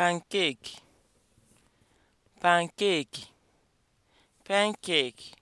pancake pancake pancake